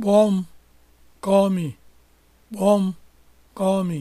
Kpọọ m, call call me.